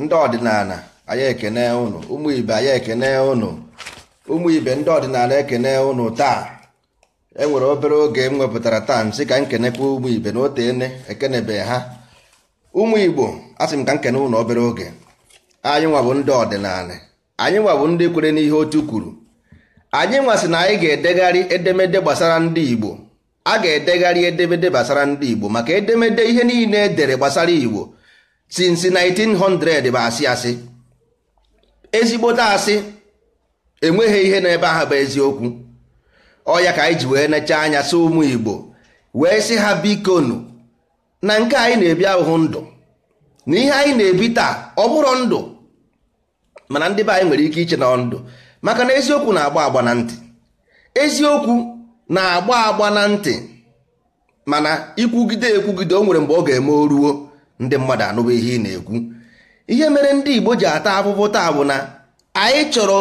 ndị ọdịnala anyị ekene ụnụ ibe ekene ụnụ ndị ọdịnala ekene ụnụ taa enwere obere oge m wepụtara taa m sị ka m kenekwa ụmụ ibe na ekenebe ha ụmụigbo igbo asị m ka m ụnụ obere oge anyị nwa bụ ndị ọdịnala anyị nwa bụ ndị kwere n'ihe otu kwuru anyị nwa sị na anyị ga-edegharị edemede gbasara ndị igbo a ga-edegharị edemede gbasara ndị igbo maka edemede ihe niile edere gbasara igbo since 1900 bụ asị asị ezigbote asị enweghị ihe n'ebe ahụ bụ eziokwu ọya ka anyị ji wee necha anya sị ụmụ Igbo wee sị ha bikonu na nke anyị na-ebi ahụhụ ndụ na ihe anyị na-ebi taa ọ bụrụ ndụ mana ndị be anyị nwere ike iche na ndụ maka na eziokwu na-agba agba na ntị eziokwu na-agba agba na ntị mana ikwugide ekwugide o nwere mgbe ọ ga-eme o ruo ndị mmadụ anụba ihe ị na-ekwu ihe mere ndị Igbo ji ata afụfụ taa bụ na anyị chọrọ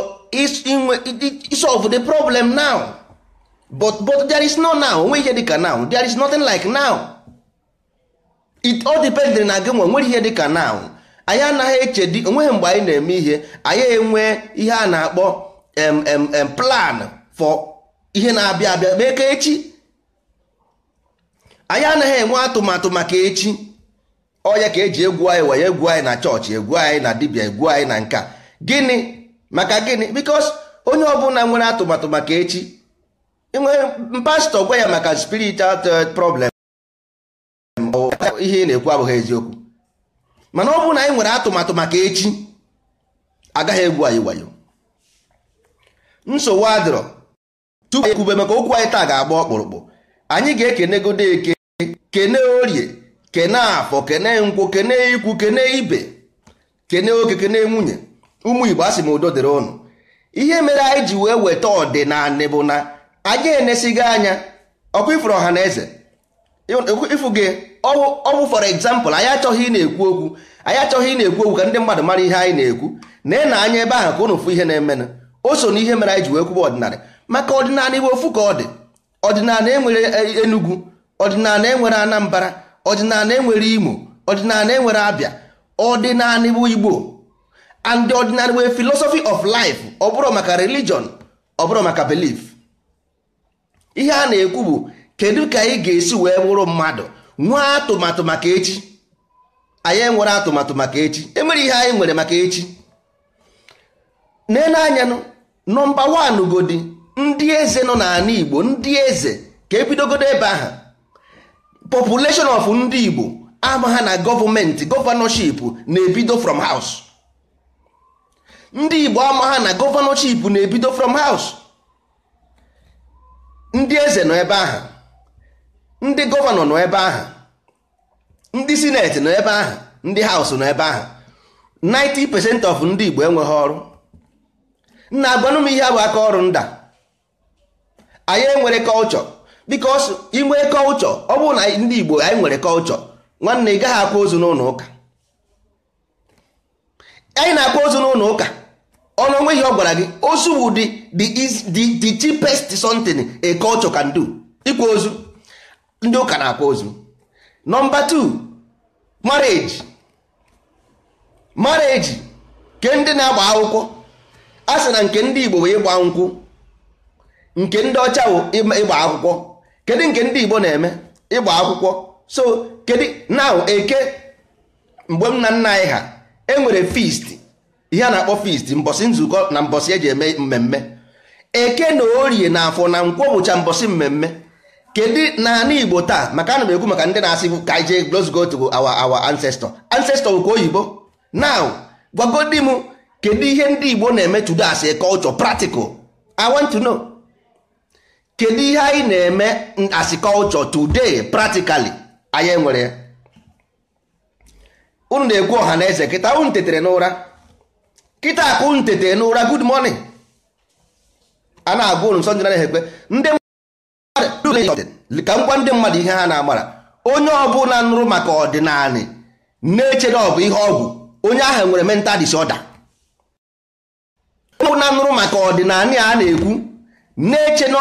solve the problem now but but there is no now onwe ihe dịka now there is nothing like now it all depends na gị nwe nwere ihe dịka now anyị anaghị echedi onweghị mgbe anyị na-eme ihe anyị enwe ihe a na-akpọ mm plan for ihe na-abịa abịa mee ka echi anyị anaghị enwe atụmatụ maka echi onye ka eji egwu anyị wee egwu anyị na chọọchị egwu anyị na dibia egwu anyị na nka gịnị maka gịnị bikos onye ọbụla nwere atụmatụ maka echi e nwere pastọ gwa ya maka spiritual uh, problem ihe ị na-ekwu abụghị eziokwu mana ọ bụrụ na anyị nwere atụmatụ maka echi agaghị egwu anyị wayo nsogbu adịrọ tupu ekwube maka okwu anyị taa ga-agba ọkpụrụkpụ anyị ga-ekenegodo eke kene orie kene afọ kene nkwụ kene ikwu kene ibe kene oke kene nwunye ụmụ igbo asị m udo dịrị ụnụ ihe mere anyị ji wee weta ọdịnala bụ na anyị enesighị anya ọkụ ifuru ọha na eze ịfụ gị ọwụ for example anyị achọghị ị na-ekwu okwu anyị achọghị ị na-ekwu okwu ka ndị mmadụ mara ihe anyị na-ekwu na na anya ebe ahụ ka ụnụ fụ ihe na-emenụ o so na ihe mere anyị ji wee kwuba ọdịnala maka ọdịnala iwe ofu ka ọ dị ọdịnala enwere enugwu ọdịnala enwere anambara ọdịnala enwere imo ọdịnala enwere abịa ọdịnala bụ igbo and the ọdịnala wee philosophy of life ọ bụrụ maka religion ọ bụrụ maka belief ihe a na-ekwu bụ kedu ka anyị ga-esi wee bụrụ mmadụ nwee atụmatụ maka echi anyị enwere atụmatụ maka echi enwere ihe anyị nwere maka echi nenanya nọmba wan godi ndị eze nọ n'ala Igbo ndị eze ka ebidogodo ebe ahụ population of ndị Igbo ama ha na gọọmenti gọvanọship na-ebido from house ndị Igbo ama ha na gọvanọship na-ebido from house ndị eze nọ ebe ahụ ndị gọvanọ nọ ebe ahụ ndị sineti nọ ebe ahụ ndị haus nọ ebe ahụ 90% of ndị Igbo enweghị ọrụ nna agwanụ m ihe bụ aka ọrụ nda anyị enwere kọlchọ bikos inwe kọlchọ ọ bụrụ na ndị Igbo anyị nwere kọlchọ nwanne ị gaghị akwa ozu n'ụlọ ụka anyị na-akwa ozu n'ụlọ ụka ọnụ onweghị ọ gwara gị ozu bụ the cheapest something a kọlchọ can do ịkwa ozu ndị ụka na-akwa ozu nọmba 2 mareji marriage ke ndị na-agba akwụkwọ a sị na nke ndị Igbo bụ ịgba nkwụ nke ndị ọcha bụ ịgba akwụkwọ kedu nke ndị Igbo na-eme ịgba akwụkwọ so kedu now eke mgbe m na nna anyị ha enwere feast ihe a na-akpọ fist mbọsị nzukọ na mbọsị eji eme mmemme eke na orie na afọ na nkwọ bụcha mbọsị mmemme kedu n'ala Igbo taa maka ana m ekwu maka ndị na-asị ka ije go awa awa our ancestor bụ nke oyibo now gwagodi m kedu ihe ndị Igbo na-eme tudo as a culture practical kedu ihe anyị na-eme as today practically anyị nwere? ya unu na-egwu ọha na eze kịta unu tetere n'ụra kịta akụ unu tetere n'ụra good morning a na-agwa unu nsọ ndị na ekpe ndị mmadụ ka ngwa ndị mmadụ ihe ha na-amara onye ọbụla nụrụ maka ọdịnala na-eche na ọ bụ ihe ọgwụ onye ahụ nwere mental disorder onye ọbụla nụrụ maka ọdịnala a na-ekwu na-eche na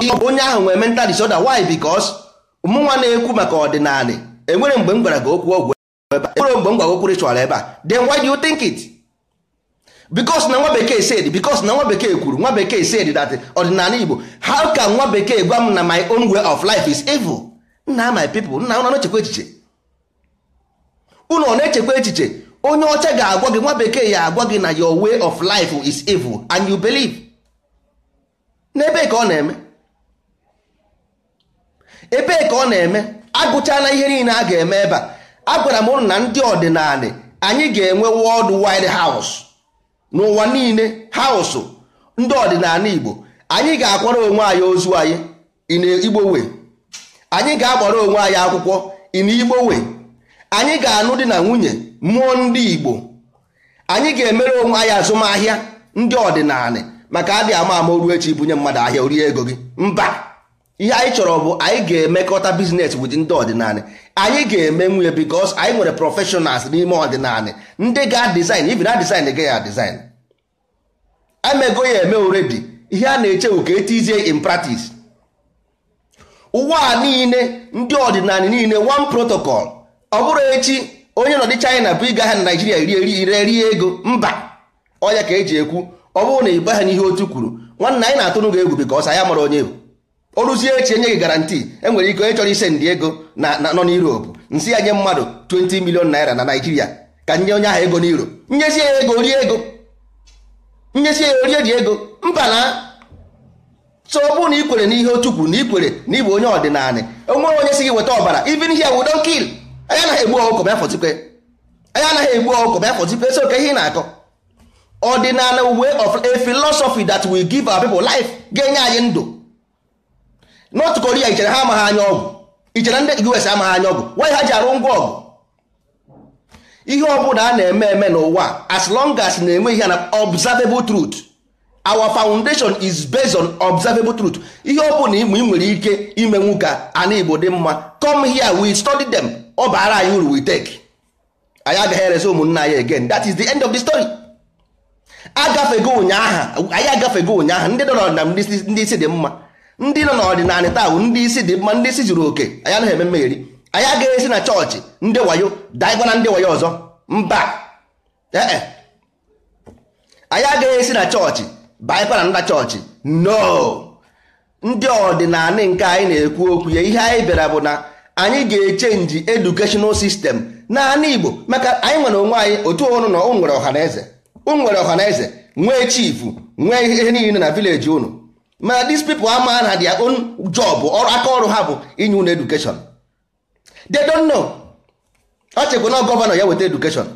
onye ahụ nwere mental disorder why because mụnwa na-ekwu maka ọdịnala enwere mgbe m gwara gị okwu ọgwụ ebe a enwere mgbe m gwara okwu ritual ebe a then why do you think it because na nwa bekee said because na nwa bekee kwuru nwa bekee said that ọdịnala Igbo how can nwa bekee gwa m na my own way of life is evil nna my people nna unu n'echekwa echiche ụlọ ọ na-echekwa echiche onye ọcha ga-agwa gị nwa bekee ya agwa gị na your way of life is evil and you believe n'ebe ka ọ na-eme ebee ka ọ na-eme agụchala ihe niile a ga-eme ebe a agwara m ụnụ na ndị ọdịnala anyị ga-enwe wọld wide haus n'ụwa niile hausụ ndị ọdịnala igbo anyị ga-akwara onwe anyị ozu anyị in anyị ga-agbara onwe anyị akwụkwọ in igbowe anyị ga-anụ di na nwunye mụọ ndị igbo anyị ga-emere onwe anyị azụmahịa ndị ọdịnala maka adị ama ama oru echi bunye mmadụ ahịa orie ego gị mba ihe anyị chọrọ bụ anyị ga-emekọta biznes wit ndị ọdịnala anyị ga eme nwunye bikos anyị nwere prọfeshọnals n'ime ọdịnala ndị ga-adizin ibi na dizin ga ya emego ya eme oredi ihe a na eche ka etizie in practice ụwa niile ndị ọdịnala niile one protocol ọ bụrụ echi onye nọ dị china bụ ịga ha na naijiria rie rie ego mba ọya ka eji ekwu ọ bụrụ na ịgba ha n'ihe otu kwuru nwanne anyị na-atụnụ ga egwu bikos anyị mara onye bụ ruzie echi enyeghị garanti enwere ike onye chọrọ ise ndị ego na nọ n'Europe nsị ya nye mmadụ 20 milion naira na Naijiria ka nye onye ahụ ego n'iro nyezi ya ego rie ego nyezi ya orie dị ego mba na so na ị n'ihe otu kwuru na ikwere na ịbụ onye ọdịnala onwere onye si gị weta ọbara ibi here we don't kill anyị anaghị egbu ọkụkọ bịa anyị anaghị egbu ọkụkọ bịa fọtịkwe so ka ihe ị na-akọ ọdịnala uwe of a that will give our pepl life ga-enye anyị ndụ north korea ichere ha amaghị anya ọgwụ ichere ndị us amaghị anya ọgwụ why ha ji arụ ngwa ọgụ ihe ọbụla a na-eme eme n'ụwa as long as na-enwe ihe na observable truth our foundation is based on observable truth ihe ọbụla igbe ị nwere ike ime nwoke ana igbo dị mma come here we study them ọ baara anyị uru we take anyị agaghị erezi ụmụnna anyị again that is the end of the story agafego ụnyaahụ anyị agafego ụnyaahụ ndị dọrọ na ndị isi dị mma ndị nọ n'ọdịnala taa ndị isi dị mma ndị isi zuru oke anya anaghị eme mmeri anyị agaghị esi na chọọchị ndị wayo daịgwa na ndị wayo ọzọ mba ee anyị esi na chọọchị baịkwa na nda chọọchị no ndị ọdịnala nke anyị na-ekwu okwu ya ihe anyị bịara bụ na anyị ga-echenji educational system naanị Igbo maka anyị nwere onwe anyị otu ụnụ na nwere ọhaneze na ọhaneze nwee chifu nwee ihe niile na vileji unu ma dis people ama na their own job aka ọrụ ha bụ inye education they don't know ọ na gọvanọ ya weta education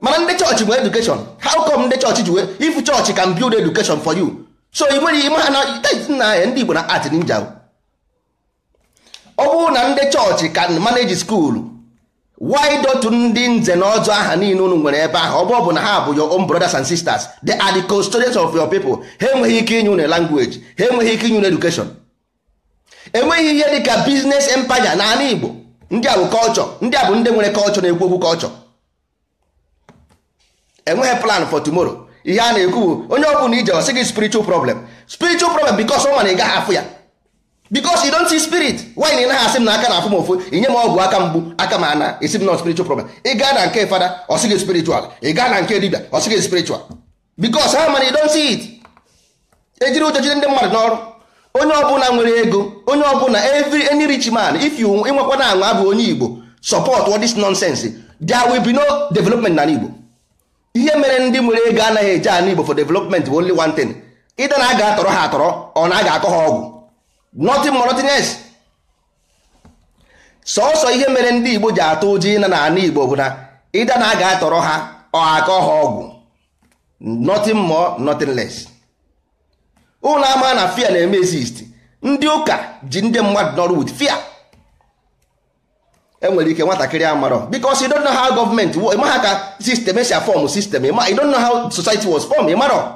mana ndị chọọchị bụ education how come ndị chọọchị ji wee if chọọchị can build education for you so ị nwere ime ha na ndị Igbo na art ninja ọ bụrụ na ndị chọọchị can manage school widotu ndị nze na ọzọ aha niile unu nwere ebe ahụ ọbụ bụ na ha bụ your own brothers and sisters they are the custodians of your people ha enweghị ike inye unu language ha enweghị ike inye unu education enweghị ihe dịka business na n'ala Igbo ndị a bụ kọlchọ ndị a bụ ndị nwere kọlchọ na-ekwu okwu kọlchọ enweghị plan for tomorrow ihe a na-ekwu bụ onye ọ bụla ije ọsị gị spiritual problem spiritual problem because ọ ma ị gaghị afụ ya because you don't see spirit why na ị naghị asị m na aka na-afụ m ofu inye m ọgwụ aka mgbu aka m ana esi m na spiritual problem ị gaa na nke fada ọ sịghị spiritual ị gaa na nke dibia ọ sịghị spiritual because ha mana you don't see it ejiri ụjọ jide ndị mmadụ n'ọrụ onye ọbụla nwere ego onye ọbụla every any rich man if you ịnwekwa na anwa bụ onye igbo support all this nonsense there will be no development na igbo ihe mere ndị nwere ego anaghị eje ana igbo for development bụ only one thing ịda na a atọrọ ha atọrọ ọ na a akọ ha ọgwụ nothing more nothing else sọsọ ihe mere ndị igbo ji atụ ụjọ ịna na ana igbo bụ na ịda na a ga-atọrọ ha aka ha ọgwụ nothing more nothing less ụlọ ama na fia na-eme exist ndị ụka ji ndị mmadụ nọrụ with fia enwere ike nwatakịrị amarọ because you don't know how government ịma ha ka system esi afọm system you don't know how society was form ịmarọ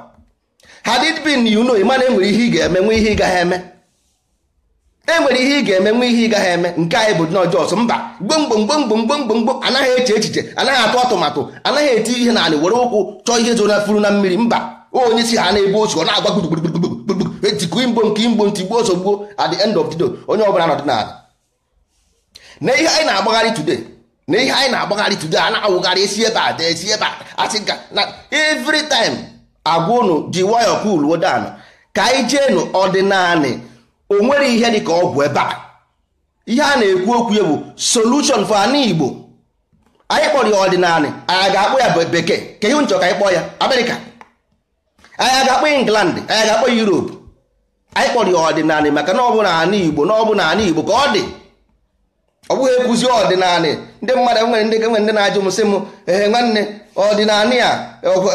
had it been you know ịma na enwere ihe ị ga-eme nwee ihe ị gaghị eme enwere ihe ị ga-eme nwe ihe ị gaghị eme nke anyị bụ nọjọs mba gbomgbomgbomgbomgbomgbom anaghị eche echiche anaghị atụ atụmatụ anaghị eti ihe na were ụkwụ chọọ ihe zoro na furu na mmiri mba onye si ha na-ebu osu ọ na-agba gburugburu etikụ igbo nke igbo ntị gbuo sogbuo end of onye ọbụla nọdị n'ala na ihe anyị na-agbagharị tude na ihe anyị na-agbagharị tude a na-awụgharị esi ebe a dee ebe a asị ga na every agwa unu ji wayọ wodan ka anyị o nwere ihe dị ka ọ bụ ebe a ihe a na-ekwu okwu ya bụ solution for anụ igbo anyị kpọrọ ya ọdịnala anyị ga-akpọ ya bekee ka ihe nchọ ka anyị kpọọ ya amerịka anyị ga-akpọ england anyị ga-akpọ europe anyị kpọrọ ya ọdịnala maka na ọ bụ na ana igbo na ọ bụ na ana igbo ka ọ dị ọ bụghị ekwuzi ọdịnala ndị mmadụ nwere ndị nwere ndị na-ajụ m sị m ee nwanne ọdịnala ya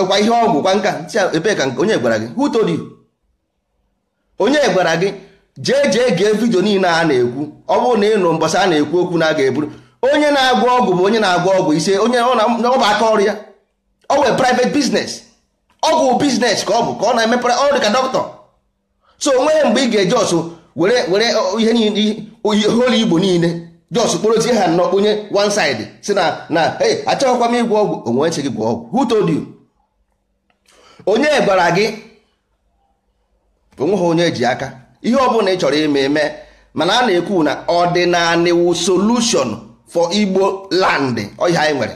kwa ihe ọgwụ kwa nka ebee ka onye gwara gị who told onye gwara gị jee jee gee vidio niile a na-ekwu ọ bụrụ na ịnụ mbọsị a na-ekwu okwu na a ga-eburu onye na-agwọ ọgwụ bụ onye na-agwọ ọgwụ ise onye ọ bụ aka ọrụ ya ọ nwere private ọgwụ biznes ka ọ bụ ka ọ na-emepere ọ dị ka dọkịta so onweghị mgbe ị ga eje ọsụ were were ihe niile igbo niile jos kporozie ha nnọọ onye one side si na na e achọghịkwa m ịgwọ ọgwụ onwe nche gị gwọ ọgwụ who told you onye gwara gị ha onye ji aka ihe ọbụla ị chọrọ ime eme mana a na-ekwu na ọdịnala wu solution for igbo land ọhịa anyị nwere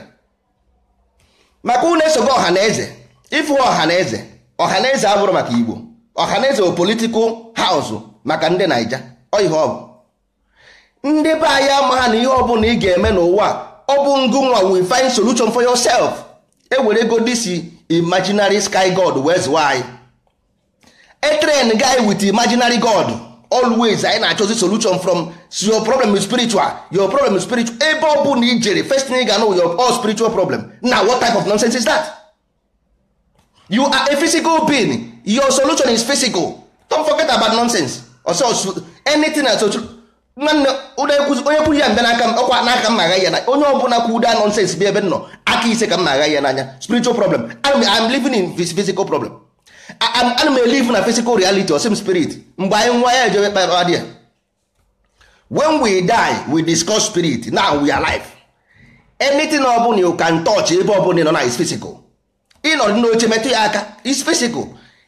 maka ọha esogo ọhaneze ịfụ ọhaneze ọhaneze abụrụ maka igbo ọhaneze bụ politikal haụs maka ndị naija ọhịa ọ bụ ndị be anyị amaha na ihe ọbụla ị ga-eme n'ụwa ọ bụ ngụnwa we find solution for yourself ewere ego disi imaginary sky god wee zụwa anyị etrain guy with imaginary god always anyị na-achọzi solution from your problem is spiritual your problem is spiritual ebe ọ bụ na ijere first thing you ga-anụ your all spiritual problem Na what type of nonsense is that you are a physical being your solution is physical don't forget about nonsense ọsọ anything na nwanne onye kwuru ya mbe n'aka m ọkwa n'aka m agha ya na onye ọbụla kwu ụda nonsense bi ebe nọ aka ise ka m na-agha ya n'anya spiritual problem I'm, living in physical problem ana m elive na physical reality osim spirit mgbe anyị nwa ya ejebe kpara dị when we die we discuss spirit now we are alive anything ọ bụla you can touch ebe ọ nọ na is physical ịnọ n'oche metụ ya aka is physical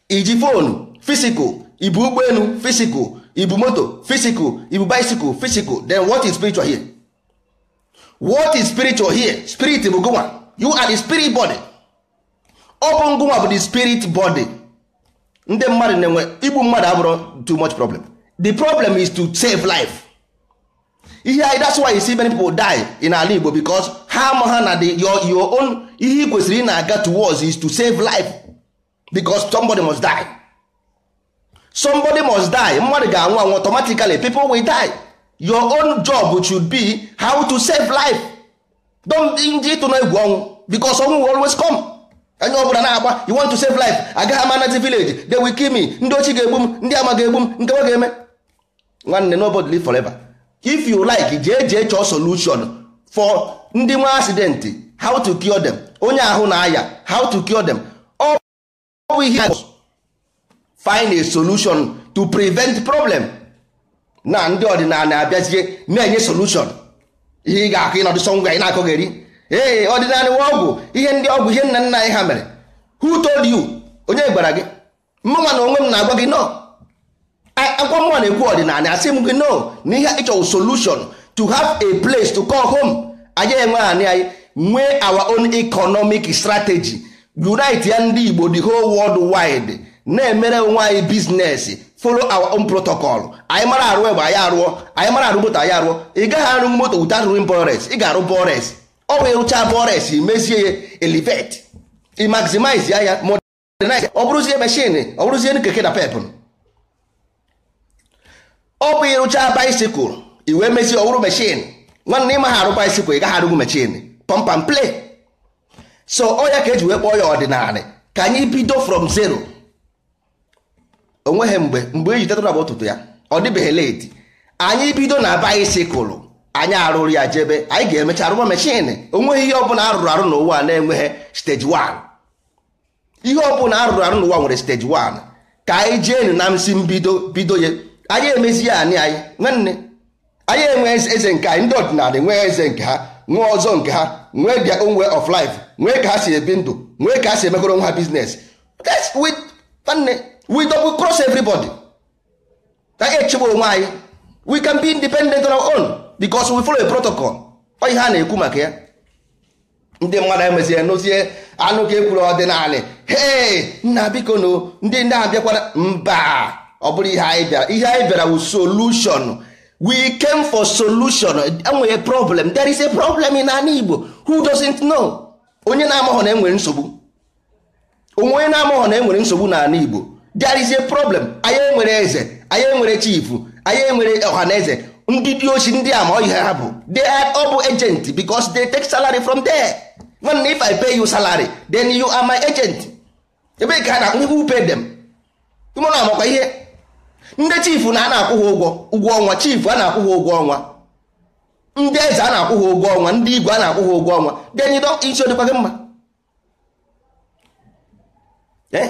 iji fonu physical ibu ụgbọelu physical ibu moto physical ibu bicycle physical then what is spiritual here what is spiritual here spirit bụ gụnwa you are the spirit body ọ bụ ngụnwa bụ the spirit body ndị mmadụ na-enwe igbu mmadụ abụrụ too much problem the problem is to save life ihe anyị that's why you see many people die in ala Igbo because ha ama ha na your own ihe ị kwesịrị ị na-aga towards is to save life because somebody must die somebody must die mmadụ ga-anwụ anwụ automatically people will die your own job should be how to save life don't ịtụ na egwu ọnwụ because ọnwụ will always come. onye ọbụla na-agba you want to save life agaghị ama anazi village they will kill me ndị ochi ga-egbu m ndị ama ga-egbu m nke nwa ga-eme nwanne nobody live forever if you like jee jee chọọ solution for ndị nwa accident how to cure them onye ahụ na-aya how to cure them find a solution to prevent problem na ndị ọdịnala abịazie na-enye solution ihe ị ga-akụ ịnọdụ ee ọdịnala nwa ọgwụ ihe ndị ọgwụ ihe nna nna anyị ha mere who told you onye gwara gị mmanwa na onwe m na-agwa gị no akwa mụnwa na-ekwu ọdịnala asị m gị no na ihe ịchọwụ solution to have a place to call home anyị enwe anị anyị nwee our own economic strategy unite ya ndị Igbo the whole world wide na-emere onwe anyị biznes follow our own protocol anyị mara arụ egbe anyị arụọ anyị mara arụ moto anyị arụọ ị gaghị arụ moto without ring bores ị ga-arụ bores ọ wee rụcha forest mezie ya elevate i ya ya modernize ọ bụrụzie machine ọ bụrụzie keke na pep ọ bụ ịrụcha bicycle i wee mezie ọ bụrụ machine nwanne ịma ha arụ bicycle ị gaghị arụgwu machine pump and so ọ ya ka eji wee kpọọ ya ọdịnala ka anyị bido from zero onweghị mgbe mgbe eji tetụrụ bụ ụtụtụ ya ọ dịbeghị late anyị bido na bicycle anyị arụrụ ya jebe anyị ga-emecha arụwa mechin onweghị ihe ọbụla arụrụ arụ n'ụwa na-enweghị steji 1 ihe ọbụla arụrụ arụ n'ụwa nwere steji 1 ka anyị jeenu na nsi mbido bido ya anyị emezi ya anyị anyị nwanne anyị enwe eze nke anyị ndị ọdịnala enweghị eze nke ha nwee ọzọ nke ha nwee their onwe way of life nwee ka ha si ebi ndụ nwee ka ha si emegoro nwa ha biznes we double cross everybody anyị echebe onwe anyị we can be independent on our own. because we follow a protocol ọ ihe a na-ekwu maka ya ndị mmadụ anyị emezie nozie anụ ka ekwuru ọdịnala hee nna biko n'o. ndị ndị ahụ bịakwara mba ọ bụrụ ihe anyị bịara ihe anyị bịara wụ solution we came for solution enwere problem there is a problem in ala Igbo who doesn't know onye na-amaghọ na enwere nsogbu onwe na-amaghọ na enwere nsogbu n'ala Igbo there is a problem anyị enwere eze anyị enwere chifu anyị enwere eze. ndị poc ndị a ma ọ ihe ha bụ they are ọ bụ agent because they take salary from there nwanne if i pay you salary then you are my agent ebe ka na na who pay them ụmụna amakwa ihe ndị chief na a na-akwụ ha ụgwọ ụgwọ ọnwa chief a na-akwụ ha ụgwọ ọnwa ndị eze a na-akwụ ha ụgwọ ọnwa ndị igwe a na-akwụ ha ụgwọ ọnwa then you don't isi ọ dịkwa gị mma eh?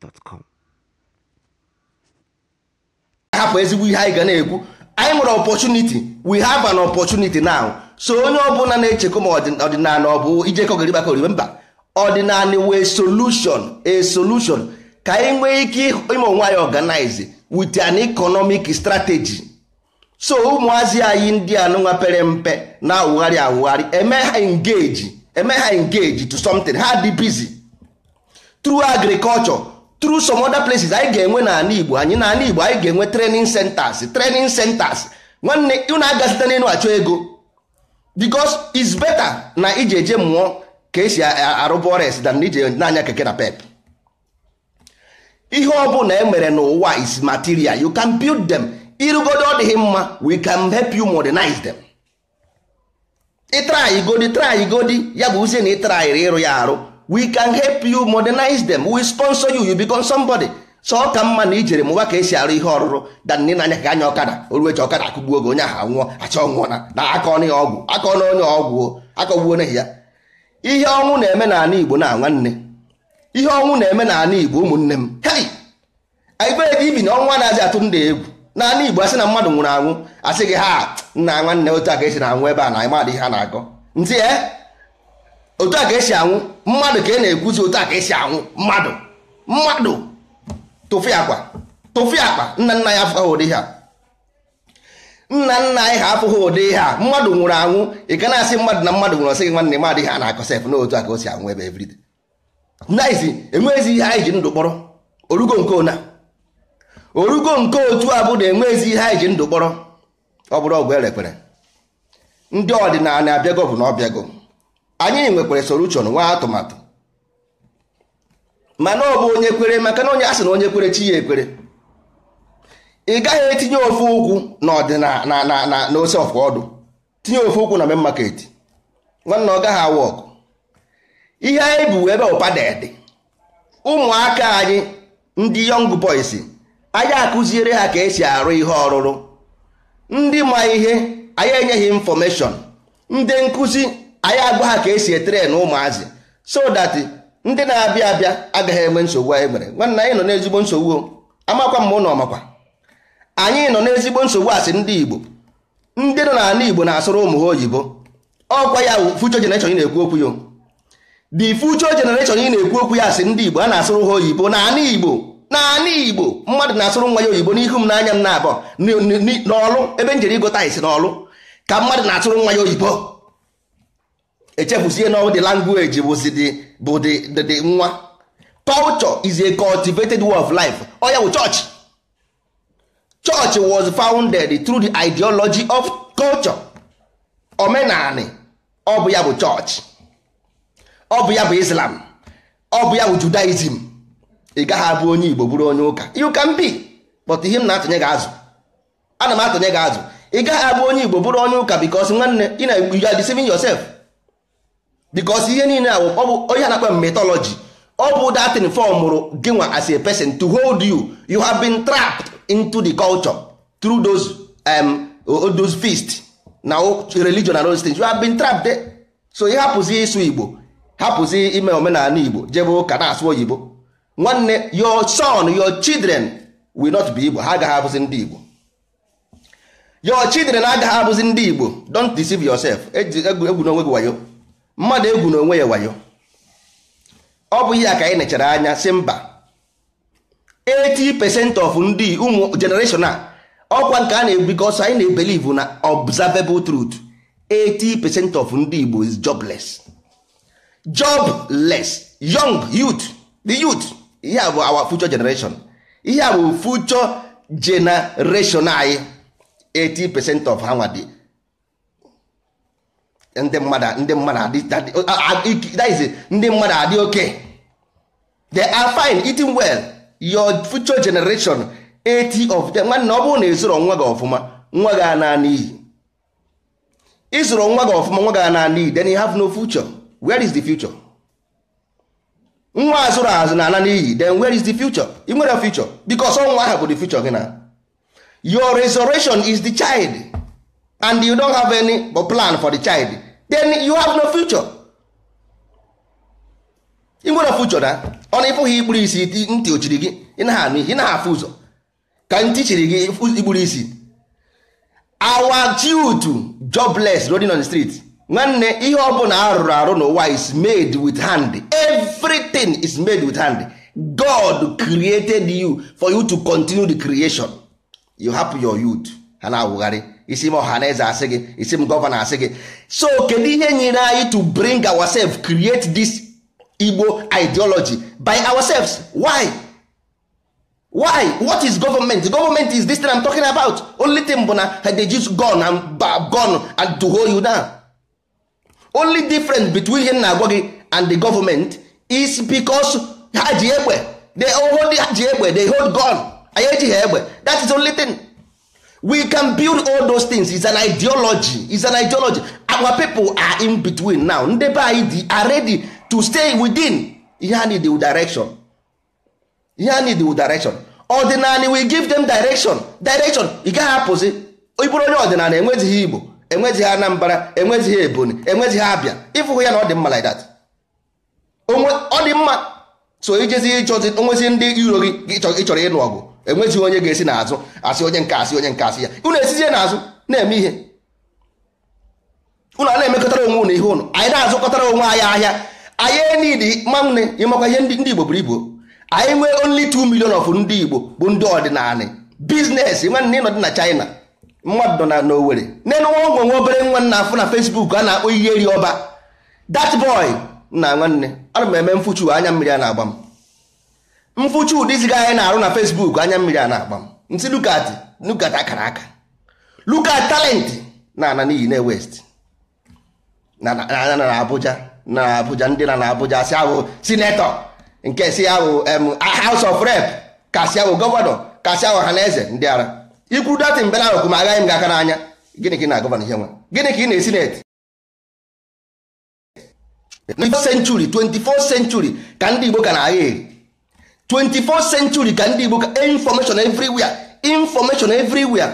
gmail.com ahapụ ezigbo ihe anyị ga na-ekwu anyị nwere opportunity we have an opportunity now so onye ọbụla na-echekwa ma ọdịnala ọ bụ ijekọ gịrị gbakọrịbe mba ọdịnala wee solution a solution ka anyị nwee ike ime onwe anyị organize with an economic strategy so ụmụazị anyị ndị anụnwa pere mpe na-awụgharị awụgharị eme ha engage eme ha engage to something ha dị busy through agriculture through some other places anyị ga-enwe n'ala Igbo anyị n'ala Igbo anyị ga-enwe training centers training centers nwanne unu aga site achọ ego because it's better na iji eje mụọ ka esi arụba dan than ije na-anya keke na pep ihe ọ na emere n'ụwa is material you can build them ịrụgodo ọ dịghị mma we can help you modernize them ịtraigodi traigodi ya bụ uzie na ịtraịrị ịrụ ya arụ we can help you modernize them we sponsor you you become somebody so ọ ka mma na ijere m ka esi arụ ihe ọrụrụ da na anya ka anya ọkada ji ọkada akụgbuo gị onye aha nwụọ acha ọnwụọ na na aka ọnụ ya ọgwụ aka ọnụ onye ọgwụ akọgbuo n'ihi ya ihe ọnwụ na-eme n'ala Igbo na nwanne ihe ọnwụ na-eme n'ala Igbo ụmụnne m hei anyị ibi na ọnwa na atụ egwu n'ala Igbo asị na mmadụ nwụrụ anwụ asị gị ha nna nwanne otu a ka esi na anwụ ebe a na ịmadị ihe a na-akọ ntị eh? otu a ka esi anwụ mmadụ ka ị na-ekwuzi otu a ka esi anwụ mmadụ mmadụ tụfụ akpa tụfụ akpa nna nna ya afụghị ụdị ha nna nna anyị ha afụghị ụdị ha mmadụ nwụrụ anwụ ị ga na-asị mmadụ na mmadụ nwụrụ ọsịghị nwanne mmadụ ihe a na-akọ sef n'otu a ka o si anwụ ebe everide naizi enweghịzi ihe anyị ji ndụ kpọrọ orugo nke ona orugo nke otu a bụ na enweghịzi ihe anyị ji ndụ kpọrọ ọ bụrụ ọgwụ erekpere ndị ọdịnala na-abịa abịago bụ na ọ bịago anyị nwekwara solution nwa atụmatụ mana ọ bụ onye kwere maka na onye asị na onye kwere chi ya ekwere ị gaghị etinye ofe ukwu n'ọdịnala na ọfụ ọdụ tinye ofe ụkwụ na main market nwanna ọ gaghị awa ọkụ ihe anyị bụ ebe ụpadadị ụmụaka anyị ndị yọng boys anyị akụziere ha ka esi arụ ihe ọrụrụ ndị ma ihe anyị enyeghị infọmeshọn ndị nkụzi anyị agwa ha ka esi etere na ụmụazị so dat ndị na-abịa abịa agaghị enwe nsogbu anyị nwere nwanna anyị nọ n'ezigbo nsogbu amakwa m ụnụ makwa anyị nọ n'ezigbo nsogbu asị ndị Igbo ndị nọ n'ala Igbo na-asụrụ ụmụ ha oyibo ọkwa ya future generation ị na-ekwu okwu ya the future generation ị na-ekwu okwu ya asị ndị Igbo a na-asụrụ ha oyibo n'ala Igbo n'ala Igbo mmadụ na-asụrụ nwa ya oyibo n'ihu m n'anya m na-abụọ n'ọlụ ebe m jere ịgụta isi n'ọlụ ka mmadụ na-asụrụ nwa ya oyibo echefusie na the language bụ the nwa culture is a cultivated way of life ọ ya bụ church church was founded through the ideology of culture omenani ọ bụ ya bụ church ọ bụ ya bụ islam ọ bụ ya bụ judaism ị gaghị abụ onye igbo bụrụ onye ụka you can be but ihe m na-atụnye gị azụ ana m atụnye gị azụ ị gaghị abụ onye igbo bụrụ onye ụka because nwanne ị na-ejudicing yourself because ihe niile a ọ bụ onye na-akpa mythology ọ bụ datin fọmụrụ mụrụ gị nwa as a person to hold you you have been trapped into the culture through those um, those feast na religion and those things you have been trapped there. so ị hapụzi ịsụ igbo hapụzi ime omenala igbo jebe ụka na-asụ oyibo nwanne your son your children will not be igbo ha agaghị abụzi ndị igbo your children agaghị abụzi ndị igbo don't deceive yourself egwu onwe gị wayo mmadụ egwu na onwe ya wayo ọ bụ ihe a ka anyị nechara anya si mba 80% of ndị ụmụ generation a ọkwa nke a na-ebikọsọ anyị na ebelive na observable truth 80% of ndị Igbo is jobless jobless young youth the youth ihe a bụ our future generation ihe a bụ future generation anyị 80% of ha nwa ndị mmadụ ndị mmadụ adị ndị mmadụ adị oke they are fine eating well your future generation 80 of them nwanne ọ bụrụ na ịzụrụ nwa gị ọfụma nwa gị ana n'iyi ịzụrụ nwa gị ọfụma nwa gị ana n'iyi then you have no future where is the future nwa azụrụ azụ na ana n'iyi then where is the future ị nwere future because ọnwa ahụ bụ the future gị na your resurrection is the child and you don't have any plan for the child then you have no future ị nwere future na ọ na ịfụghị ikpuru isi ntị ochiri gị ị naghị anụ ị afụ ụzọ ka ntị chiri gị ikpuru isi our jute jobless rolling on the street nwanne ihe ọ bụla arụrụ arụ n'ụwa is made with hand everything is made with hand god created you for you to continue the creation you hapụ your youth ha na-awụgharị isi na ọhaneze asị gị isi m gọvanọ asị gị so kedu ihe nyere anyị to bring ourselves create this igbo ideology by ourselves why why what is government government is this thing i'm talking about only thing bụ na they use gone and gone and to hold you down only difference between ihe na agwa gị and the government is because ha ji egbe they hold ha ji egbe they hold gun anyị egbe that is only thing we can build all those things is an ideology is an ideology our people are in between now ndị be anyị are ready to stay within ihe need the direction ihe need the direction ọdịnala we give them direction direction ị gaghị apụzi ịbụrụ onye ọdịnala enwezighị igbo enwezighị anambra enwezighị ebonyi enwezighị abịa ịfụhụ ya na ọ dị mma like that ọ dị mma so ijezi ịchọzi onwezi ndị iro gị ịchọrọ ọgụ enweghị onye ga-esi n'azụ asị onye nke asị onye nke asị ya unu esizie n'azụ na-eme ihe ụlọ a na-emekọtara onwe ụnụ ihe ụnụ anyị na-azụkọtara onwe anyị ahịa anyị nidi manwne ịmakwa ihe ndị igbo buru ibu anyị nwee onli 2 million of ndị igbo bụ ndị ọdịnala biznes nwanne ịnọdị na china mmadụ nọ na n'owere nenu nwa ogwe nwa obere nwa nna afụ na fesbuk a na-akpọ ihe eri ọba that boy na nwanne ana m eme mfuchu anya mmiri a na-agba m mfụchi ụdị ziga anyị na-arụ na Facebook anya mmiri a na-agba m nsi lukat lukat akara aka lukat talent na ana n'iyi na west na na Abuja na Abuja ndị na na Abuja si ahụ sinetọ nke si ahụ House of Rep k'asi ahụ gọvanọ k'asi ahụ ọhaneze ndị ara ikwu datin bela ahụ ma agaghị m gị aka n'anya gịnị ka ị na-agọvanọ ihe nwa gịnị ka ị na-esineti 24th century 24th century ka ndị Igbo ka na-agha eri 24th century ka ndị Igbo ka information everywhere information everywhere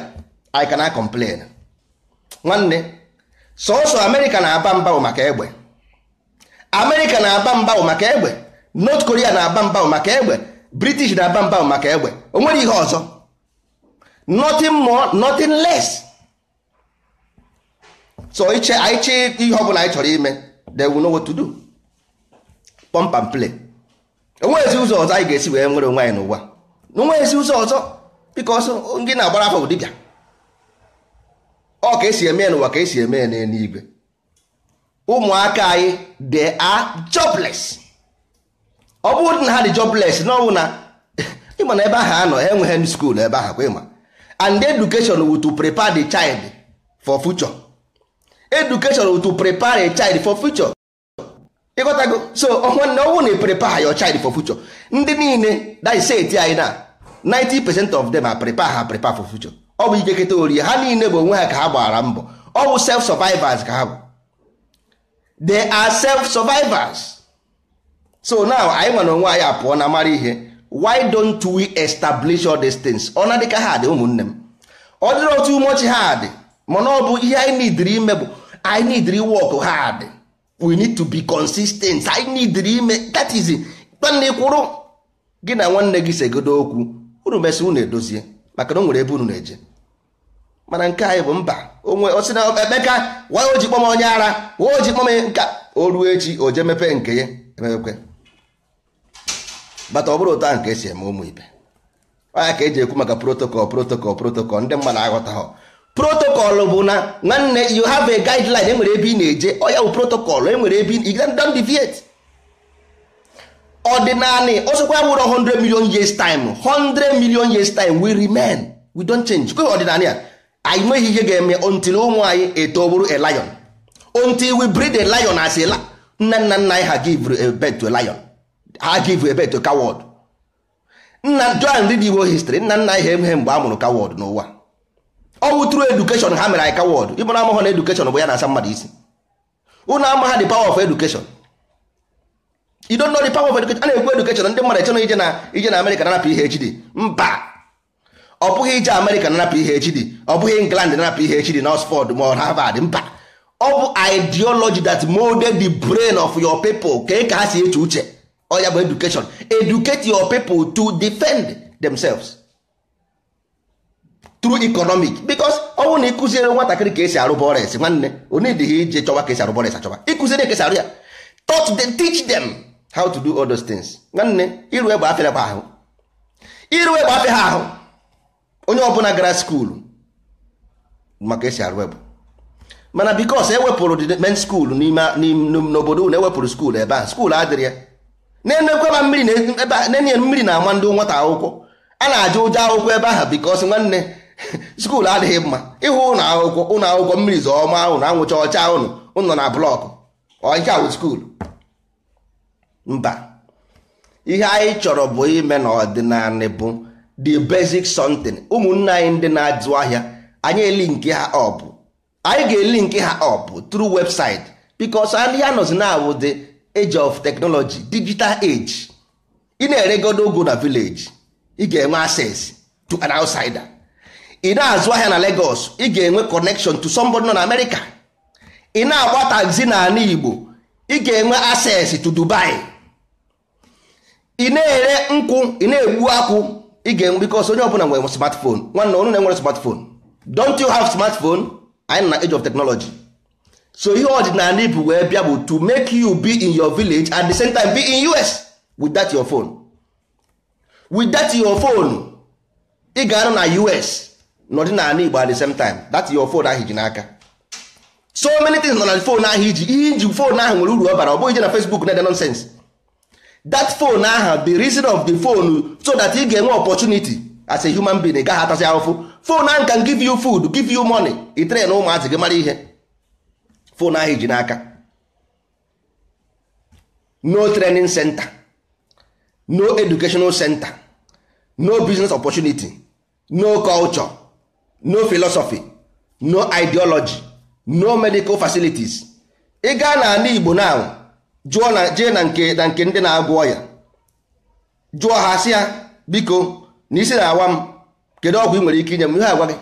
I cannot complain nwanne sọsọ America na-aba mba maka egbe America na-aba mba maka egbe North Korea na-aba mba maka egbe British na-aba mba maka egbe o nwere ihe ọzọ nothing more nothing less so iche anyị chee ihe ọ bụla anyị chọrọ ime they will know what to do pump and play enweghịzi ụzọ ọzọ anyị ga-esi wee nwere onwe anyị n'ụwa na onweghịzi ụzọ ọzọ biko ọsọ ndị na-agbara afọ ụdịbịa ọ ka esi eme n'ụwa ka esi eme n'eluigwe ụmụaka anyị de a jobless ọ bụrụ na ha dị jobless na ọnwụ na ịma na ebe ahụ anọ enweghị m skuul ebe ahụ kwa ịma and education wu to prepare the child for future education wu to prepare a child for future ịghọtago so nwanne ọnwụ na prepare your child for future ndị niile daiseti anyị na 90 percent of them are prepare ha prepare for future ọ bụ ikeketa ori ha niile bụ onwe ha ka ha gbara mbọ ọ bụ self survivors ka ha bụ they are self survivors so now anyị nwere onwe anyị apụọ na mara ihe why don't we establish all these things ọ na dịka ha dị ụmụnne m ọ dịrị otu umochi ha dị mana ọ bụ ihe anyị nidiri ime bụ anyị nidiri wọk ha dị we need to be consistent I need ime that is nwanne kwụrụ gị na nwanne gị segodo okwu unu mesị unu edozie maka na o nwere ebe unu na-eje mana nke anyị bụ mba onwe osi na Emeka wa o ji kpọm onye ara wa o ji kpọm nka o ruo echi o je mepe nke ya emepekwe bata ọ bụrụ ụta nke esi eme ụmụ ibe ọ ya ka eji ekwu maka protokol protokol protokọl ndị mmadụ aghọtaghọ protocol bụ na nwanne you have a guideline enwere ebe ị na-eje ọ ya bụ protocol enwere ebe ị don deviate ọdịnanị ọsọkwa ya nwere 100 million years time 100 million years time we remain we don't change kwe ọdịnanị a anyị nweghị ihe ga-eme until ụmụ anyị eto bụrụ a lion until we breed a lion as a nna nna nna anyị ha give a birth to a lion ha give a birth to a coward nna john read Igbo history nna nna anyị ha emeghe mgbe a mụrụ coward n'ụwa ọwụ tru edukeshọn ha mere ika wọd ịbụ na amụghọ na edukeshọn bụ ya na-asa mmadụ isi ụnụ amagha the power of education you don't know the power of education a na-ekwu education ndị mmadụ echena ije na ije na Amerịka nanapụ PhD mba ọ bụghị ije Amerịka nanapụ PhD ọ bụghị England nanapụ PhD na Oxford ma havard mba ọ bụ ideology that molded the brain of your people ka ka ha si eche uche ọ ya bụ education educate your people to defend themselves through economic because bụrụ na ịkụziere nwatakịrị ka esi arụ bọres nwanne onyedighi ije chọwa ka esi arụ bọres achọwa ịkụziri ka esi arụ ya taught them teach them how to do all those things nwanne iru egbe afịa ha ahụ iru egbe afịa ha ahụ onye ọbụla gara skuulu maka esi arụ egbe mana bikos ewepụrụ men skuulu n'obodo na ewepụrụ skuulu ebe ahụ skuulu adịrị ya na-enekwe mmiri na-ama mmiri ndị nwata akwụkwọ a na-ajụ ụjọ akwụkwọ ebe ahụ bikos nwanne skuul adịghị mma ịhụ ụlọ akwụkwọ mmiri zọọma ahụ na anwụcha ọcha ụnụ ụnọ na blọkụ ọnka wụ skuulu mba ihe anyị chọrọ bụ ime na ọdịnala bụ the basic something ụmụnne anyị ndị na-azụ ahịa anyị eli ha anyị ga-eli nke ha ọp through website because ndị ha nọzi na awụ age of technology digital age ị na-eregodo ogo na village ị ga-enwe access to an outsider ị na-azụ ahịa na Lagos ị ga-enwe connection to somebody nọ na America ị na-agba taxi na ala Igbo ị ga-enwe access to Dubai ị na-ere nkwụ ị na-egbu akwụ ị ga-enwe because onye ọbụla nwere smartphone nwanne ọnụ na-enwere smartphone don't you have smartphone anyị na age of technology so ihe ọdịnala bụ wee bịa bụ to make you be in your village at the same time be in US with that your phone with that your phone ị ga-anọ na US n'ọdịnala Igbo at the same time that your phone ahụ iji n'aka so many things nọ na phone ahụ iji ihe iji phone ahụ nwere uru ọ bara ọ bụghị ije na Facebook na-ede nonsense that phone ahụ the reason of the phone so that ị ga-enwe opportunity as a human being gaghị atasị ahụfụ phone ahụ can give you food give you money itere na ụmụazị gị mara ihe phone ahụ iji n'aka no training center no educational center no business opportunity no culture no philosophy no ideology no medical facilities ị gaa na ala Igbo na jụọ na jee na nke na nke ndị na-agwọ ọya jụọ ha sị ya biko na isi na-awa m kedu ọgwụ ị nwere ike inye m ihe agwa gị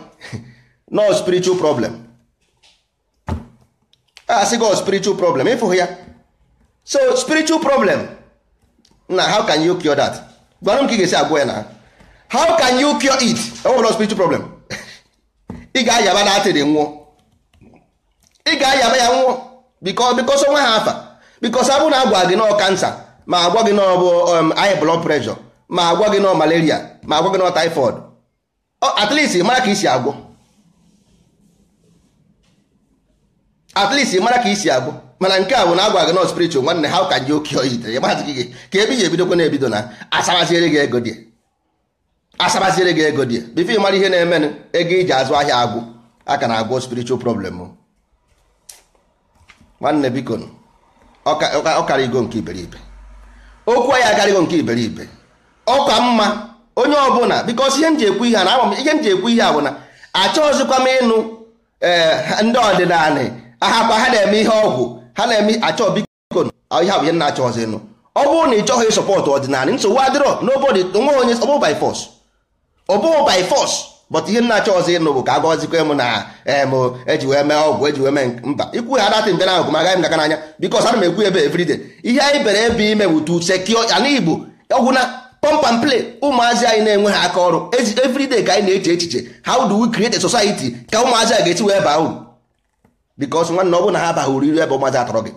no spiritual problem a sị gị oh, spiritual problem ịfụghị ya so spiritual problem na how can you cure that gwara m ka ị ga-esi agwọ ya na how can you cure it ọ bụrụ spiritual problem ị ga-ayaba na atịrị nwụọ ị ga-ayaba ya nwụọ bikọ bikọsọ nwa ha afa bikọsọ abụ na agwa gị nọọ kansa ma agwa gị nọọ bụ um, high blood pressure ma agwa gị nọọ malaria ma agwa gị nọọ typhoid at least mara ka isi agwọ at least mara ka isi agwọ mana nke a bụ na agwa gị nọọ spiritual nwanne ha ka ji oke oyi tere ya mazị gị ka ebe i ji ebidokwa na-ebido na asaraziere gị ego dị asabaziri gị ego dị bifo ịmara ihe na-emenụ ego iji azụ ahịa agwụ aka na agwụ spiritual problem nwanne biko ọkara karịgo nke iberibe okwu ya akarịgo nke iberibe ọka mma onye ọbụla biko ihe m ji ekwu ihe a na ihe m ji ekwu ihe a bụ achọghịzikwa m ịnụ eh, ndị ọdịnala ahakwa ha na-eme ihe ọgwụ ha na-eme achọ biko ihe bụ ihe na-achọghịzị ịnụ ọ bụrụ na ị chọghị ịsọpọtụ ọdịnala nsogbu adịrọ n'obodo onwe onye ọbụ ọ bụghị by force but ihe nnacha ọzọ ịnụ bụ ka agọzikwa m na em eh, eji wee mee ọgwụ eji wee mee mba ikwu ha datị mbe ahụ magaghị m anya because ana m ekwu ebe everyday ihe anyị bere ebe ime bụ to secure ala igbo ọgwụ na pump and play ụmụazị anyị na-enwe ha aka ọrụ everyday ka anyị na-eche echiche how do we create a society ka ụmụazị a ga-esi wee baa uru because nwanne ọ na ha abaghị uru iru ebe ụmụazị atọrọ gị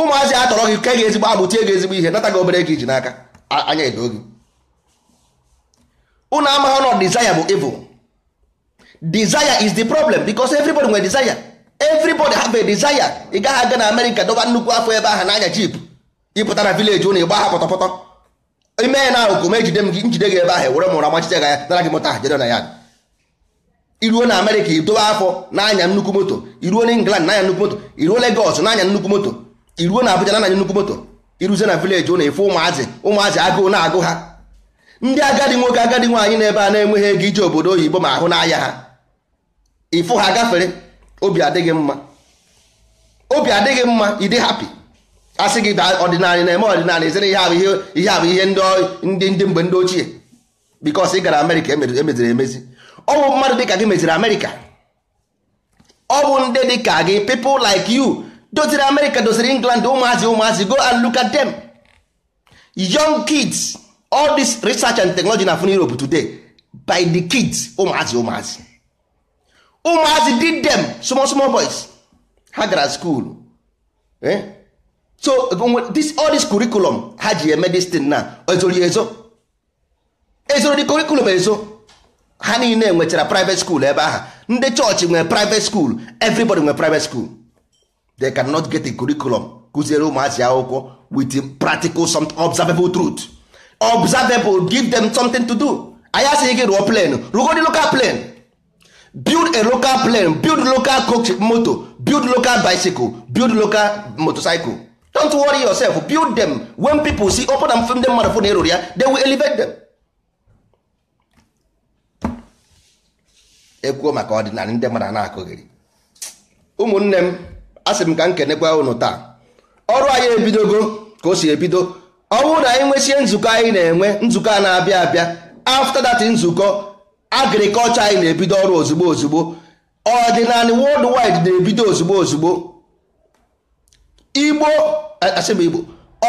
ụmụazị atọrọ gị ka e ga ezigbo agbụ tie gị ezigbo ihe nata gị obere gị ji n'aka anya edo gị unu amaghị na desire bụ evil desire is the problem because everybody nwere desire everybody have a desire ị gaghị aga na America dọba nnukwu afọ ebe ahụ n'anya jeep ịpụta na village ụnụ ịgba ha pọtọpọtọ ime ya na ahụkụ ma ejide m gị njide gị ebe ahụ were mụrụ amachite ga ya nara gị mụta ahụ na ya iruo na America idobe afọ n'anya nnukwu moto iruo na England n'anya nnukwu moto iruo Lagos n'anya nnukwu moto iruo na Abuja n'anya nnukwu moto iruzie na village ụnụ ịfụ ụmụazị ụmụazị agụụ na-agụ ha ndị agadi nwoke agadi nwaanyị n'ebe a na-enweghị ego ije obodo oyibo ma ahụ n'anya ha ịfụ ha gafere obi adịghị mma obi adịghị mma ịdị hapi asị gị ọdịnala na-eme ọdịnala ezere ihe ahụ ihe abụ ihe ndị ndị mgbe ndị ochie bikos ị gara amerịka emeziri e emezi ọ bụ mmadụ ka gị meziri amerịka ọ bụ ndị dịka gị people like yu doziri amerịka doziri england ụmụazị ụmụazị go and look at them young kids all this research and technology na fun Europe today by the kids ụmụazị ụmụazị ụmụazị did them small small boys ha gara school eh? so um, this, all this curriculum ha ji eme eh, this thing na ezori ezo ezoro the curriculum ezo ha niile nwetara private school ebe ahụ ndị chọọchị nwere private school everybody nwere private school they cannot get a curriculum kụziere ụmụazị akwụkwọ with practical some observable truth observable give them something to do anyị asịghị gị rụọ plane rụgodi local plane build a local plane build local coach moto build local bicycle build local motorcycle don't worry yourself build them when people see open and film them mmadụ fụ na erori ya they will elevate them ekwuo maka ọdịnala ndị mmadụ na-akụghịrị ụmụnne m asị m ka m kenekwa unu taa ọrụ anyị ebidogo ka o si ebido ọ bụrụ na anyị nwesie nzukọ anyị na-enwe nzukọ a na-abịa abịa after that nzukọ agrikọlchọ anyị na-ebido ọrụ ozugbo ozugbo ọdịnala worldwide na-ebido ozugbo ozugbo igbo asịba igbo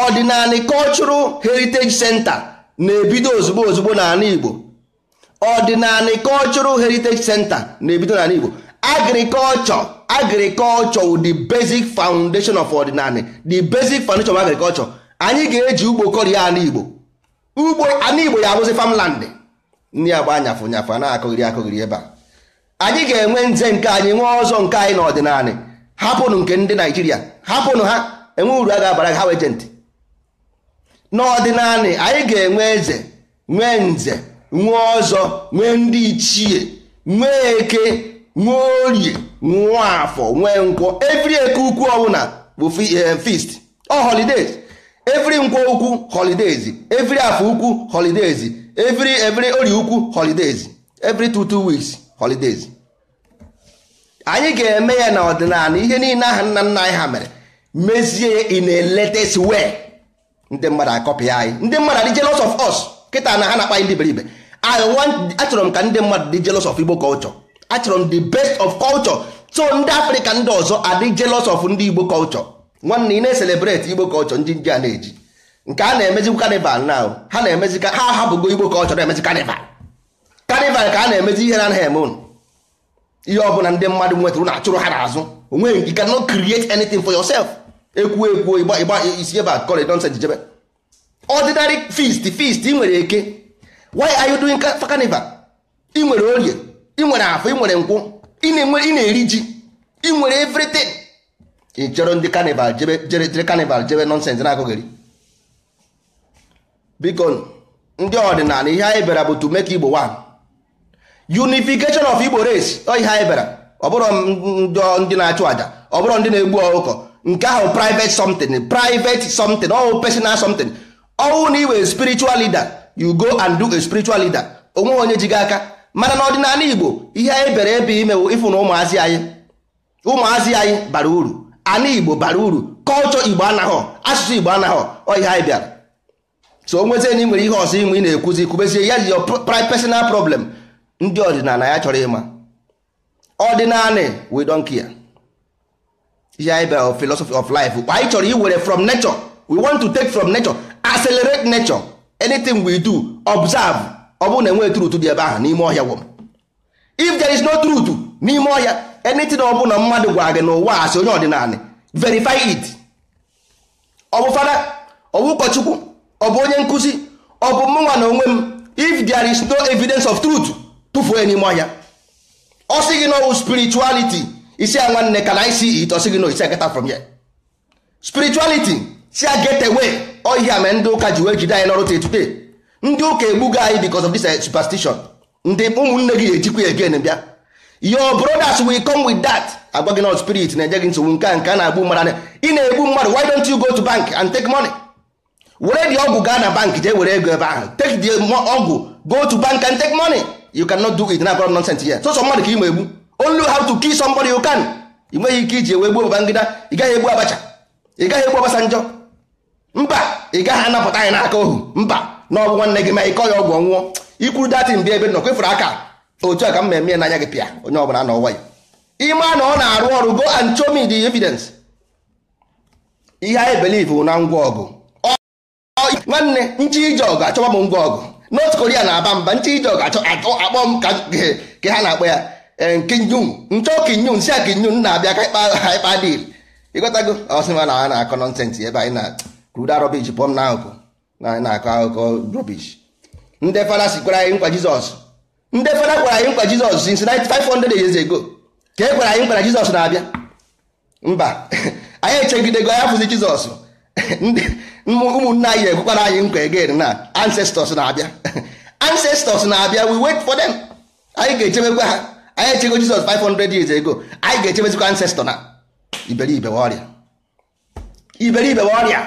ọdịnala cultural heritage center na-ebido ozugbo ozugbo n'ala igbo ọdịnala cultural heritage center na-ebido n'ala igbo agriculture agriculture the basic foundation of ọdịnala the basic foundation of agriculture anyị ga-eji ugbo kọrị ala igbo ugbo ala igbo ya abụzi famlandị ndị agba anyafụ nyafụ a na-akụghịrị akụghịrị ebe a anyị ga-enwe nze nke anyị nwee ọzọ nke anyị n'ọdịnala hapụnụ nke ndị naijiria hapụnụ ha enwe uru a ga-abara ha wejentị n'ọdịnala anyị ga-enwe eze nwee nze nwee ọzọ nwee ndị ichie nwee eke nwee orie nwee afọ nwee nkwọ evri eke ukwu ọbụla bụ fist eh, ọ holidays every nkwo ukwu holidays every afọ ukwu holidays every every ori ukwu holidays every two two weeks holidays anyị ga-eme ya na ọdịnala ihe niile aha nna nna anyị ha mere mezie in a latest way ndị mmadụ akọpị anyị ndị mmadụ dị jealous of us kịta na ha na-akpa ndị beribe I want achọrọ m ka ndị mmadụ dị jealous of Igbo culture achọrọ m the best of culture so ndị africa ndị ọzọ adị jealous of ndị Igbo culture nwanne ị na-eselebreti igbo kọlchọ ndị ndị a na-eji nke a na emezi kanival na ha na-emezi ha hapụgo igbo kọlchọ na-emezi kanival kanival ka a na-emezi ihe na anaghị eme ụnụ ihe ọbụla ndị mmadụ nwetara na achụrụ ha n'azụ onweghị you cannot create anything for yourself ekwuo ekwuo ịgba ịgba isi ebe a kọrị nonsense jijebe ordinary feast feast ị nwere eke why are you doing carnival ị nwere orie ị nwere afọ ị nwere nkwụ ị na-eri ji ị nwere everything ị chọrọ ndị kanival jere kanival jebe nọnsens na-akụghịrị biko ndị ọdịnala ihe anyị bịara bụ to make Igbo one unification of Igbo race ọ ihe anyị bịara ọ ndị na-achụ àjà ọ ndị na-egbu ọkụkọ nke ahụ private something private something ọwụ personal something ọwụ na iwe spiritual leader you go and do a spiritual leader onwe onye ji gị aka mana n'ọdịnala Igbo ihe anyị bịara ebe imewu ịfụ na ụmụazị anyị ụmụazị anyị bara uru ala igbo bara uru kọlchọ igbo anaghị asụsụ igbo anaghị ọhịa anyị bịara so onwezie na ị nwere ihe ọzọ inwe ị na-ekwuzi kwubezie ya ji personal problem ndị ọdịnala ya chọrọ ịma ọdịnala we don't care ihe anyị bịara philosophy of life anyị chọrọ iwere from nature we want to take from nature accelerate nature anything we do observe ọ bụrụ na enweghị truth dị ebe ahụ n'ime ọhịa if there is no truth n'ime ọhịa anything ọ bụla mmadụ gwara gị a asị onye ọdịnala verify it ọ bụ fada ọ bụ ụkọchukwu ọ bụ onye nkụzi ọ bụ mụnwa na onwe m if there is no evidence of truth tụfuo n'ime ọhịa ọ sị gị n'ọwụ spirituality isi a nwanne ka na isi it ọ sị gị no isi get from ya. spirituality si a get away ọhịa mere ndị ụka ji wee jide anyị n'ọrụ today ndị ụka egbugo anyị because of this eh, superstition ndị ụmụnne gị ga-ejikwa ya again bịa your brothers will come with that agwaghị gị not spirit na eje gị nsogbu nke a nke a na-agbu mmadụ ị na-egbu mmadụ why don't you go to bank and take money were dị ọgwụ gaa na bank jee were ego ebe ahụ take the ọgwụ go to bank and take money you cannot do it na abụrụ nonsense here so mmadụ ka ị ma egbu only how to kill somebody you can ị nweghị ike iji ewe gbuo Babangida ị gaghị egbu Abacha ị gaghị egbu njọ mba ị gaghị anapụta anyị n'aka ohu mba na ọgwụ nwanne gị ma ịkọ ya ọgwụ ọnwụọ ikwuru datin bịa ebe nọ kwefuru aka otu a ka m eme n'anya gị pịa onye ọbụla nọ nwayọ ịma na ọ na-arụ ọrụ go and show me the evidence ihe anyị believe na ngwa ọgụ nwanne nchi ije ọgụ achọba m ngwa ọgụ north korea na-aba mba nchi ije ọgụ akpọ m ka ha na-akpọ ya eh, kinyun nchọ kinyun si a kinyun na-abịa ka ịkpa dil ịgotago ọsịma na a na-akọ nọnsensị ebe anyị na kruda rọbish pụọ m na akụkụ na anyị na-akọ akụkọ rọbish ndị fada sikwara anyị nkwa jizọs ndị fada gwara anyị nkwa jizọs since 500 years ago ka e gwara anyị nkwa na jizọs na-abịa mba anyị echegidego anyị afụzi jizọs ụmụnne anyị ekwekwara anyị nkwa again na ancestors na-abịa ancestors na-abịa we wait for them anyị ga-echebekwa ha anyị echego jizọs 500 years ago anyị ga-echebezikwa ancestor na iberibe ọrịa iberibe ọrịa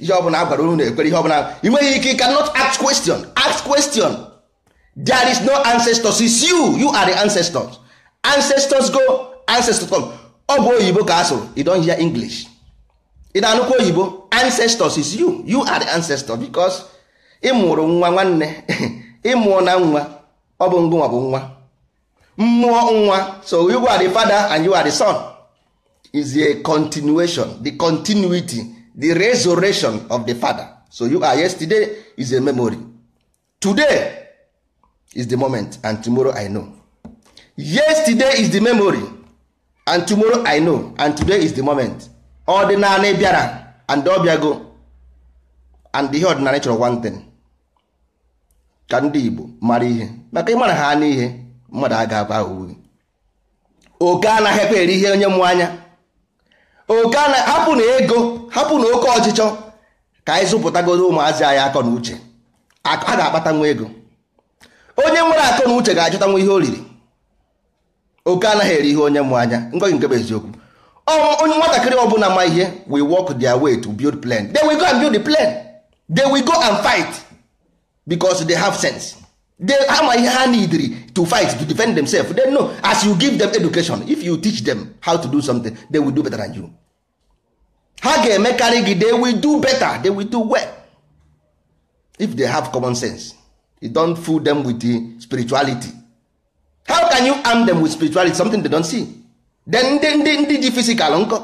ihe ọbụla a gwara unu na-ekwere ihe ọbụla ị nweghị ike you not ask question ask question there is no ancestors it's you you are the ancestors ancestors go ancestors come ọ bụ oyibo ka asụrụ you hear english ị na-anụkwa oyibo ancestors is you you are the ancestor because ịmụrụ nwa nwanne ịmụọ na nwa ọ bụ ngụnwa bụ nwa mmụọ nwa so you are the father and you are the son is a continuation the continuity the resurrection of the father so you are yesterday is a memory today is the moment and tomorrow I know. Yesterday is the memory and tomorrow I know and today is the moment. Ọdịnala bịara and ọ bịago and ihe ọdịnala chọrọ one thing ka ndị Igbo mara ihe maka ịmara ha n'ihe mmadụ a ga-aba uwe oke anaghị ekwe eri ihe onye mụ anya oke ana hapụ na ego hapụ na oke ọchịchọ ka anyị zụpụtagoro ụmụazị anyị akọ na uche a ga-akpata nwa ego onye nwere akọ na uche ga-achọtanwu ihe o riri oke anaghị eri ihe onye mụ anya ngọghị nke bụ eziokwu onye nwatakịrị ọbụla ma ihe we walk their way to build plan they will go and build the plan they will go and fight because they have sense they ha ihe ha needri to fight to defend themselves they know as you give them education if you teach them how to do something they will do better than you ha ga-emekarị gị they will do better they will do well if they have common sense you don't fool them with the spirituality how can you arm them with spirituality something they don't see then ndị ndị ndị ji fisikal nkọ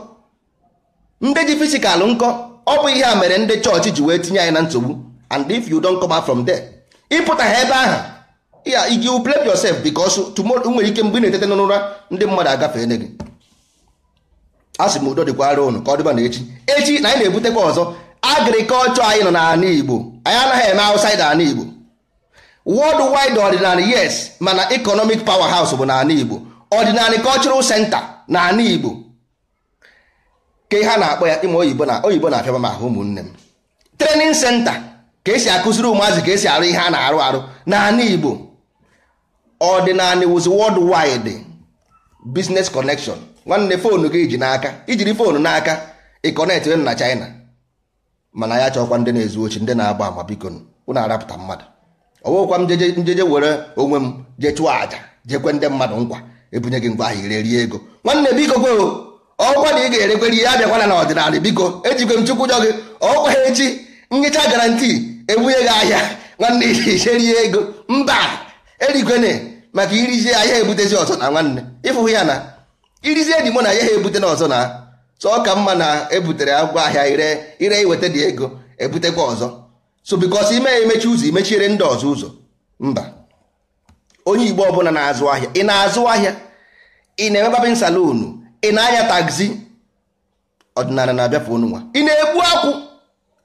ndị ji fisikal nkọ ọ bụ ihe a mere ndị chọọchị ji wee tinye anyị na nsogbu and if you don't come out from there ịpụta ha ebe ahụ you blame yourself because tomorrow nwere ike mgbe ị na-etete n'ụra ndị mmadụ agafee gị a sị m udo dịkwara ụnụ ka ọ dịba na echi echi na anyị na-ebutekwa ọzọ agrikọlchọ anyị nọ n'ala Igbo anyị anaghị eme outside ala Igbo world wide ordinary yes mana pawa powerhouse bụ n'ala Igbo ordinary senta na n'ala Igbo ke ha na-akpọ ya ime oyibo na oyibo na-afịa m ahụ ụmụnne m Trenin senta ka esi akụziri ụmụazị ka esi arụ ihe a na-arụ arụ n'ala Igbo ordinary was world wide business connection nwanne foonu gị ji n'aka ijiri foonu n'aka ịkọnet na China mana ya chọkwa ndị na-ezu ochi ndị na-agba ama biko unu arapụta mmadụ ọwụkwa m njeje were onwe m jee chụọ aja, jekwe ndị mmadụ nkwa ebunye gị ngwa ahịa ire rie ego nwanne biko go ọkwa na ị ga-erekwere ihe abịakwana na ọdịnala biko ejikwe m chukwu jọ gị ọkwa echi nhicha garanti ebunye gị ahịa nwanne ije rie ego mba erikwene maka irizie ahịa ebutezi ọzọ na nwanne ịfụhụ ya na irizie dị mụ na ya ha ebute na ọzọ na sọ ka mma na ebutere ngwa ahịa ire ire iweta dị ego ebutekwa ọzọ so because ime ya emechi ụzọ imechiere ndị ọzọ ụzọ mba onye igbo ọbụla na-azụ ahịa ị na-azụ ahịa ị na-eme babin salon ị na-anya tagzi ọdịnala na-abịa fonu nwa ị na-egbu akwụ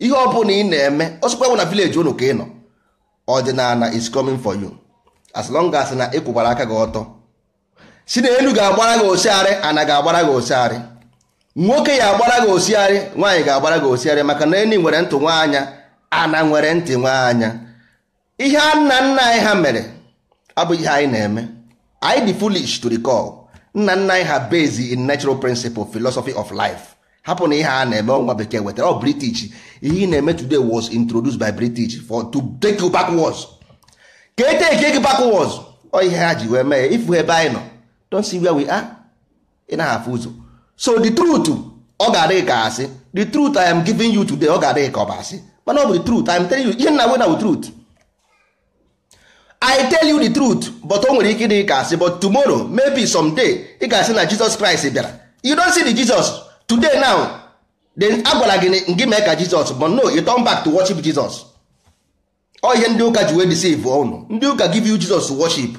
ihe ọbụla ị na-eme ọsụkwa bụ na vileji unu ka ị nọ ọdịnala is coming for you as long as na ịkwụkwara e aka gị ọtọ si na elu ga-agbara gị osiarị ana ga-agbara gị osiarị nwoke ya agbara gị osiarị nwaanyị ga-agbara gị osiarị maka na enyi nwere ntụ nwaanya ana nwere ntị anya ihe a nna nna anyị ha mere abụghị ihe anyị na-eme anyị dị foolish to recall nna nna anyị ha based in natural principle philosophy of life hapụ na ihe a na-eme ọnwa bekee wetara ọ british ihe ị na-eme today was introduced by british for to take you backwards ka eteke gị backwards ọ ihe ha ji wee mee ifu ebe anyị nọ don't see where we are ị na afụ ụzọ so the truth ọ ga-adịghị ka asị the truth I am giving you today ọ ga-adịghị ka ọ asị mana ọ bụ the truth I'm telling you ihe nna wena bụ truth I tell you the truth but o nwere ike dị ka asị but tomorrow maybe someday ị ga-asị na Jesus Christ bịara you don't see the Jesus today now then agwara gị gị mee ka Jesus but no you turn back to worship Jesus ọ oh, ihe ndị ụka ji wee deceive unu oh, ndị ụka give you Jesus to worship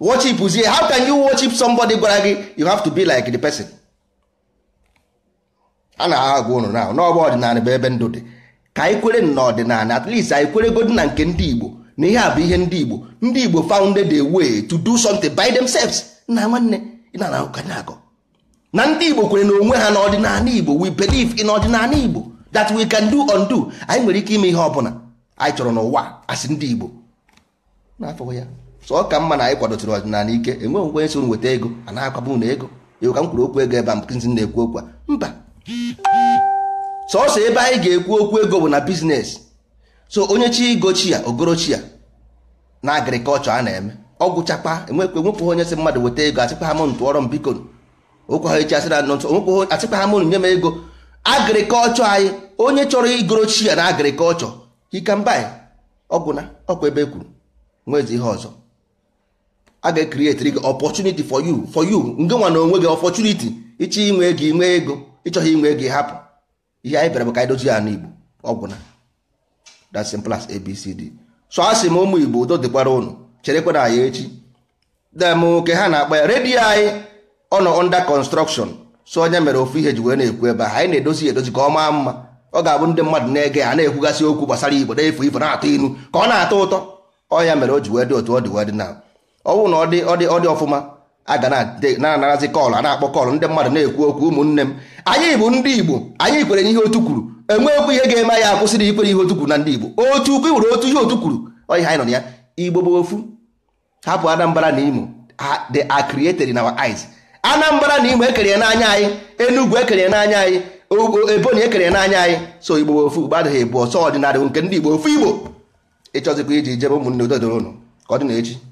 worship zie how can you worship somebody gwara gị you have to be like the person a na-agwa ụnụ oh, now n'ọgba ọdịnala bụ ebe ndụ dị ka anyị kwere n'ọdịnala at least anyị kwere na nke ndị Igbo na ihe a bụ ihe ndị Igbo ndị Igbo founded a way to do something by themselves na nwanne na-akọ na ndị Igbo kwere na onwe ha ọdịnala Igbo we believe in ọdịnala Igbo that we can do undo anyị nwere ike ime ihe ọbụla anyị chọrọ n'ụwa asị ndị Igbo n'afọ ya so ka mma na anyị kwadotụrụ ọdịnala ike enwe onwe nso nweta ego a na-akwabu na ego ego ka m kwuru okwu ego ebe a mkụzi na-ekwu okwu a mba sọọsọ ebe anyị ga-ekwu okwu ego bụ na biznes so onye chi gochi ya ogorochi ya na agrikọlchọ a na-eme ọgwụchakpa enwekwe enwekweghị onye si mmadụ weta ego asịkwa ha mụnụ tụọrọ m biko okwe ha echi asịra nọ ntụ onwekweghị asịkwa ha mụnụ nye m ego agrikọlchọ anyị onye chọrọ igorochi ya na agrikọlchọ hikambai ọgwụna ọkwa ebe ekwuru nwezi ihe ọzọ a ga-ekrietiri gị opọtuniti for you for you nge nwa na onwe gị opọtuniti ịchọ inwe ego inwe ịchọghị inwe ego hapụ ihe anyị bịara bụ ka anyị dozie ya n'igbo ọgwụ na that's simple as abcd so a sị m ụmụ igbo udo dịkwara ụnụ cherekwa na anyị echi dem ha na-akpa ya redio anyị ọ nọ under construction so onye mere ofu ihe ji wee na-ekwu ebe a anyị na-edozi ya edozi ka ọ maa mma ọ ga-abụ ndị mmadụ na-ege ya na-ekwugasị okwu gbasara igbo na-efu ifo na-atọ inu ka ọ na-atọ ụtọ ọ ya mere o ji wee dị otu ọ dị wee dị na ọ na ọ dị ọ dị ọfụma aga na-anarazi kọlụ a na-akpọ kọlụ ndị mmadụ na-ekwu okwu ụmụnne m anyị bụ ndị igbo anyị kwere n'ihe otu kwuru enweghịkwa ihe ga-eme akwụsị akwụsịrị ikwere ihe otu kwuru na ndị igbo otu ukwu nwere otu ihe otu kwuru onye anyị nọ na ya igbo bụ ofu hapụ anambra na imo the are in our eyes anambra na imo ekere n'anya anyị enugu ekere n'anya anyị ebonyi ekere n'anya anyị so igbo bụ ofu igbo adịghị bụ ọsọ ọdịnala nke ndị igbo ofu igbo ịchọzikwa iji jebe ụmụnne ododo ụnụ ka ọ dị na echi